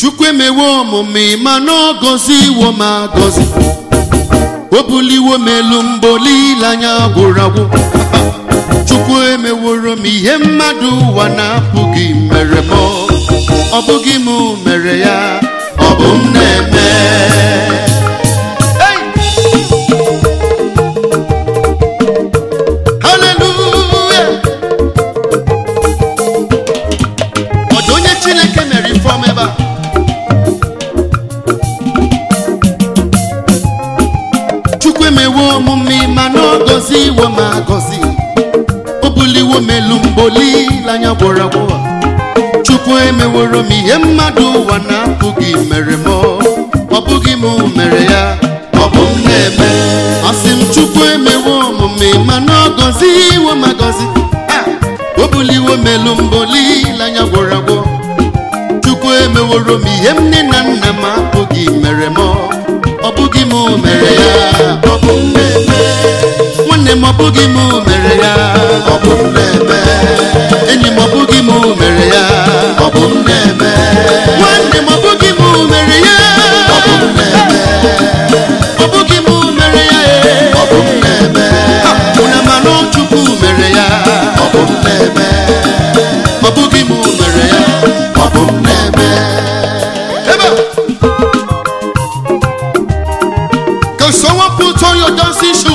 chukwu emewo ọmụmụ ịma na ọgọzi iwo m agọzi o buliwo m elu mbụ anya gwụrụ agwụ chukwu emeworo m ihe mmadụ ụwa na-apụghị mere m ọ bụghị m mere ya ọ bụ m na-eme olileanya gwọrọ agwọ chukwu emeworo m ihe mmadụ ụwa na-apụghị mere m ọ bụghị m mere ya ọ bụ m na-eme asị m chukwu emewo omume mana ọ gọzi iwe ma gọzi o buliwo melu mbụ olileanya gwọrọ agwọ chukwu emeworo m ihe nne na nna m apụghị mere ọ bụghị m mere ya ọ bụ m na-eme nwanne m ọ m mere ya m na-eme enyi m ọbụghị bụghị m mere ya ọ bụ m na-eme nwanne m ọ bụghị m mere ya ọ bụ m na-eme ọ bụghị m mere ya e. ọ bụ m na-eme ụna mana Chukwu mere ya ọ bụ m na-eme ọbụghị bụghị m mere ya ọ bụ m na-eme Can someone put on your dancing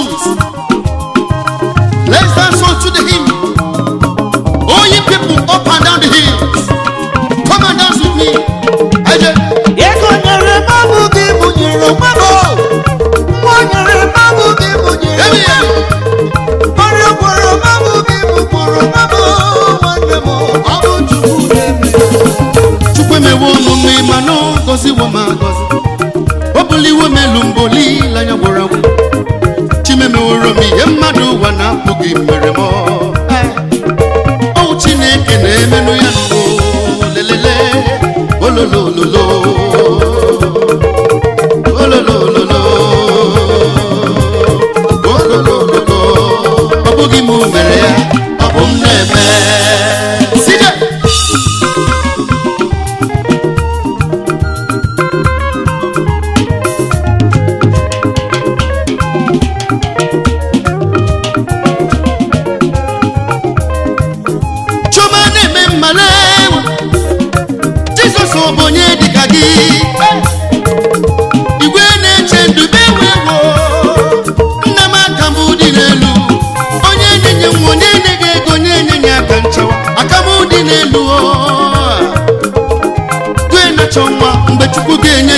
mana apụghị mere m ọ Chineke na-emenụ ya lelele ololololo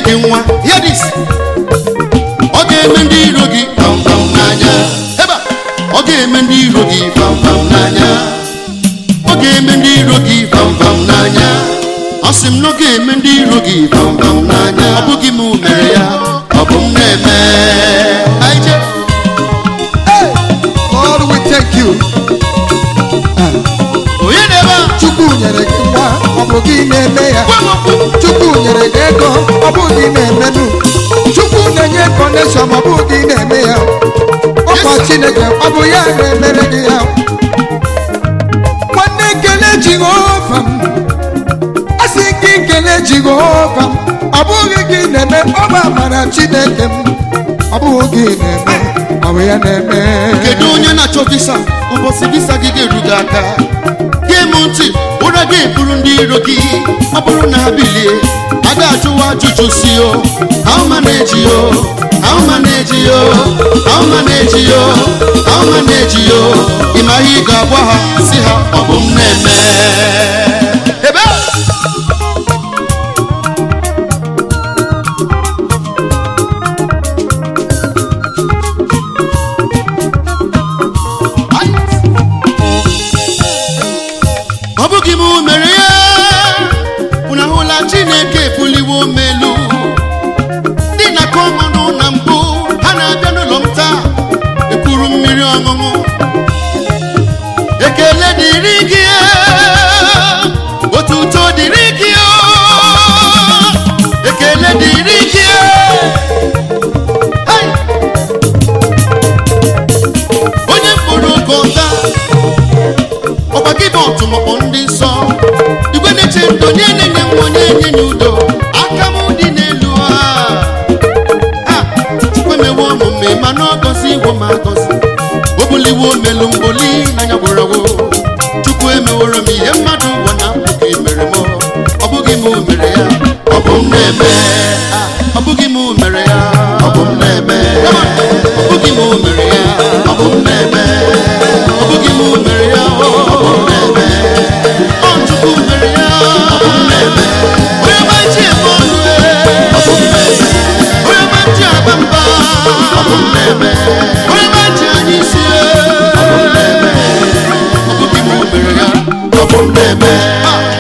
gị nwa ọ ga-eme ndị iro gị ebe ọ ga-eme ndị iro gị ọ ga-eme ndị iro gị n'anya ọ sị m na ọ ga-eme ndị iro gị n'anya ọ bụghị m mere ya ọ bụ m na-eme onye na-ebe chukwu nyere gị nwa ọ bụghị na-eme ya chukwu nyere gị ọ bụ ụdị na-emenu chukwu na-enye kọneshọn ọ bụ ụdị na-eme ya ọkwa chineke ọ bụ ya na-emere gị ya nwanne kele jehova m asị gị kele jehova ọ bụghị gị na-eme ọba amara chineke m ọ bụghị gị na-eme ọ bụ ya na-eme kedu onye na-achọ visa ụbọchị visa gị ga-eru gị aka na eburu ndị iro gị ọ bụrụ na ha bilie a ga-ajụwa ajụjụ si o how o yo o eji yo na-eji yo na-eji yo ị ma ihe ị ga-agwa ha si ha ọ bụ m na-eme ọṅụṅụ ekele dịrị gị otuto dịrị gị ekele dịrị gị onye mkpụrụ gota ọkwa gị bụ ọtụmọkpọ ndị nsọ igwe na-eche ndụ onye na-enye nwa onye enye ya udo aka dị n'elu ha a ma agọzi alụ mgbo n'anya gwụrọgwụ chukwu emeworo m ihe mmadụ ngwa na mkpuke mere m ọ bụghị m mere ya ọ bụ m na-eme ọ bụghị m mere ya ọ bụ m na-eme ọ bụghị m